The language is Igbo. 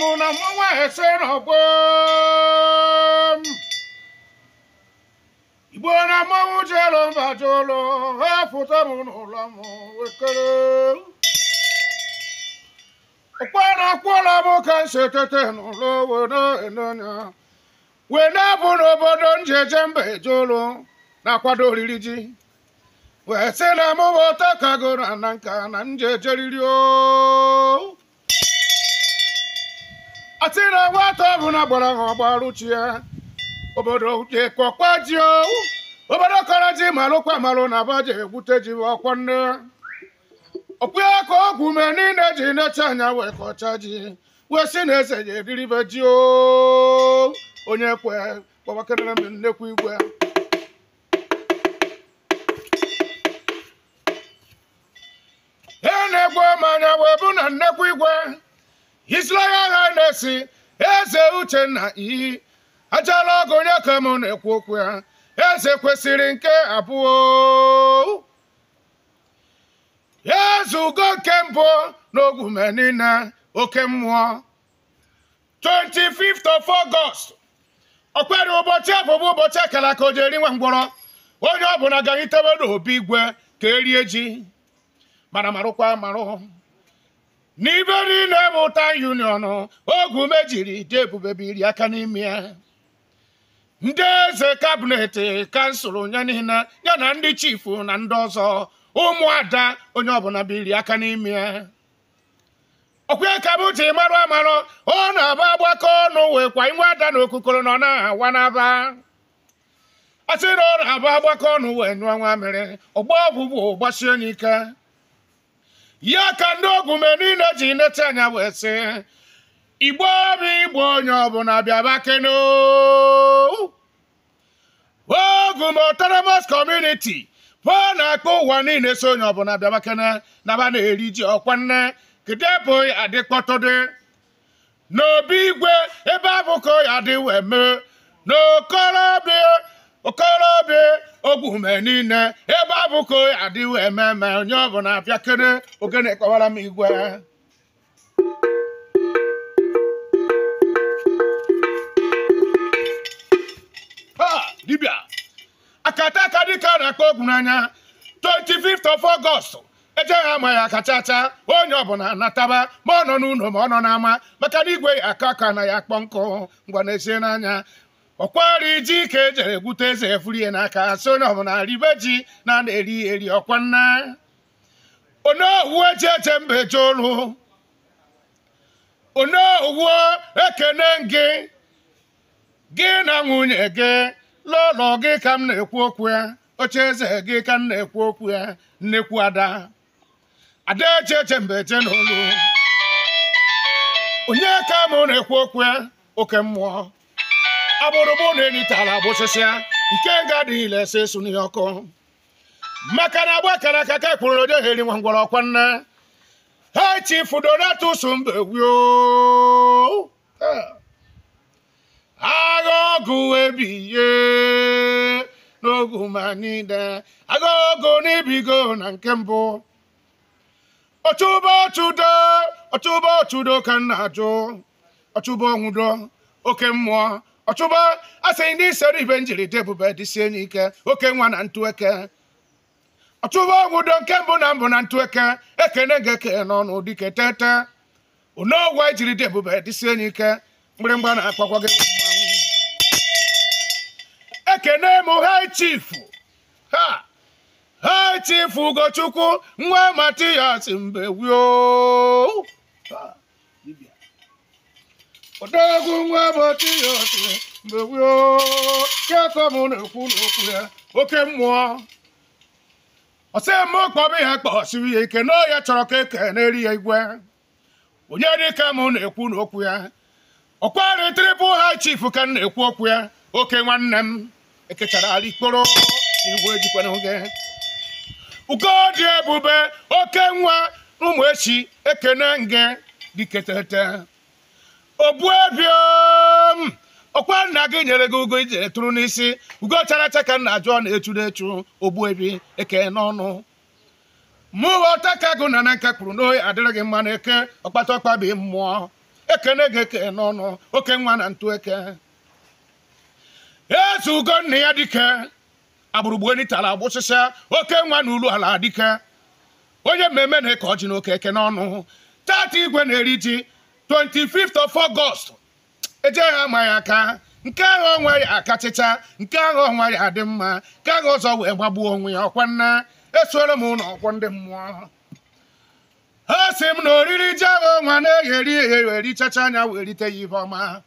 m na mụnwa esere ọgbọm igbo na mmanwụ jelo mba jụlụ ha pụta m n'ụlọ m wekere Ọkwa na akwụla m ka m si etete n'ụlọ were enonya wee na-abụ n'obodo njeje mba ejolu na-akwado oriri ji wee sị na mụwa ọta kagoro na nka na njejeriri o atị na nwata ọbụla gbara ha ọgbaruchi ya obodo jekọkwa ji obodo kọrọ ji malụkwa malụ na baje egwute ji ọkwa nne okpu ya ka ọgwụ ume niile ji necha anya wee kọcha ji wee si na eze ya ediribe ji onye kwe kpọbakerere m nnekwu igwe e na-egbu mmanya anya wee bụ na nnekwu igwe isla ya na eze uchenna iyi ajala ọgụ onye ka m na-ekwu okwu ya eze kwesịrị nke abụọ ezugo nke mbụ niile oke mmụọ 25th of August ọ ụbọchị abụbụ ụbọchị akara ka o jeri nwa mgbọrọ onye ọ ga na n'obi igwe ka erie ji mara marụkwa marụ n'ibe niile bụ tan union ogu mejiri dị ebube biri aka n'ime ya ndị eze kabinet kansụl ya niile ya na ndị chifu na ndị ọzọ ụmụada onye ọbụla biri aka n'ime ya ọkwa ka bụ ji marụ amarụ ọ na-aba agbakọ ọnụ kwa inwe ada na okukoro nọ na-awa n'aba asị na ọ na-aba agbakọ ọnụ wee nyụọ nwa mere ọgba ọbụbụ gbasie ike. ya ka ndị ogwume niile ji nete anya wee sị igbo bụ igbo onye ọbụla bịaba keno ogwum autonomous kọmuniti, pụọ na akpa ụwa niile so onye ọbụla bịaba na naba na-eri ji ọkwa nne kedebụghị adịkpọtụdị n'obi igwe ebe abụkọ ya dị wee mee n'okorobịa okorobịa ogwume niile abụko adịwo ememe onye ọ bụla abịa kere ogene kọwara m igwe dibịa akata aka dịka na-akpọ ogwu n'anya 25th of August ejeghị ama ya akachacha onye ọbụla nataba ma ọ nọ n'ụlọ ma ọ nọ n'ama maka na igwe ya aka aka na ya akpọ nkụ ngwa na-esie n'anya ọkwari iji ka ejere gwute eze efurie n'aka so na ọbụna ribe ji na na-eri eri ọkwa nna onowu eji eche mba eje olu onowu ekene gị gị na nwunye gị n'ụlọ gị ka m na-ekwu okwu ya oche eze gị ka m na-ekwu okwu ya nnekwu ada ada eche eche mba eje n'olu onye ka m na-ekwu okwu ya oke mmụọ agbụrụgbụ na enitala gbụsịsịa nke nga adịghị ilesa esu n'ihe ọkụ maka na agba akara aka ka e kpụrụ n'ode heri nwa ngwọrọ ọkwa nne ha chifu donatus mbegwio agha ọgụ ebiye n'ogu manide agha ọgụ n'ibigo na nke mbụ ọchụba ọchụdo ọchụba ọchụdo ka nna ajụ ọchụba ọnwụdo oke mmụọ ọchụba asịghị ndị sere ibe njiride ebube dịsie enyi ike oke nwa na eke ọchụba ọgwụdo nke mbụ na mbụ na ntụ eke ekene ga-eke n'ọnụ dike tete onoogwe jiride ebube dịsie enyi ike mgbịrịmgba na-akpakwa gị ekene m hai chifu ha hai chifu ugochukwu nwa Matias matiyas mbewio odogwu nwa matiyas mgbe gboo ketọ m na-ekwu n'okwu ya oke mmụọ ọsịmkpọba ya kpọsiri ya ike na ya chọrọ ka eke na-eri ya igwe onye dịka m na-ekwu n'okwu ya ọkwari tribụl hai chief ka m na-ekwu okwu ya oke nwanne m ekechara ala ikporo n'igwe n'oge oge dị ebube oke nwa ụmụ echi ekene nge diketete ogbuebiom ọkwa nna gị nyere gị ugo ijere tụrụ n'isi ugo chara acha ka nna jụọ na echu na-echu ogbuebi eke n'ọnụ mụwa ọta ka gụ na na nka kwuru na adịrị gị mma na eke ọkpata ọkpa bụ mmụọ ekene gị eke n'ọnụ oke nwa na ntụ eke eze ugo nna ya dike agbụrụgbueni tara agbụsịsịa oke nwa na ulu ala dike onye mmemme na-eke ọjị na eke n'ọnụ tata igwe na-eri ji 25th of ejeghị ama aka nke ahụ onwe aka akachịcha nke ahụ ọ ya adị mma nke ahụ ọzọ wee gbagbuo onwe ya ọkwa nna esuoro m ụlọ ọkwọ ndị mmụọ ha si m na oriri ji ahụ ọnwa na-egheri eghe anya werite ya ihe ọma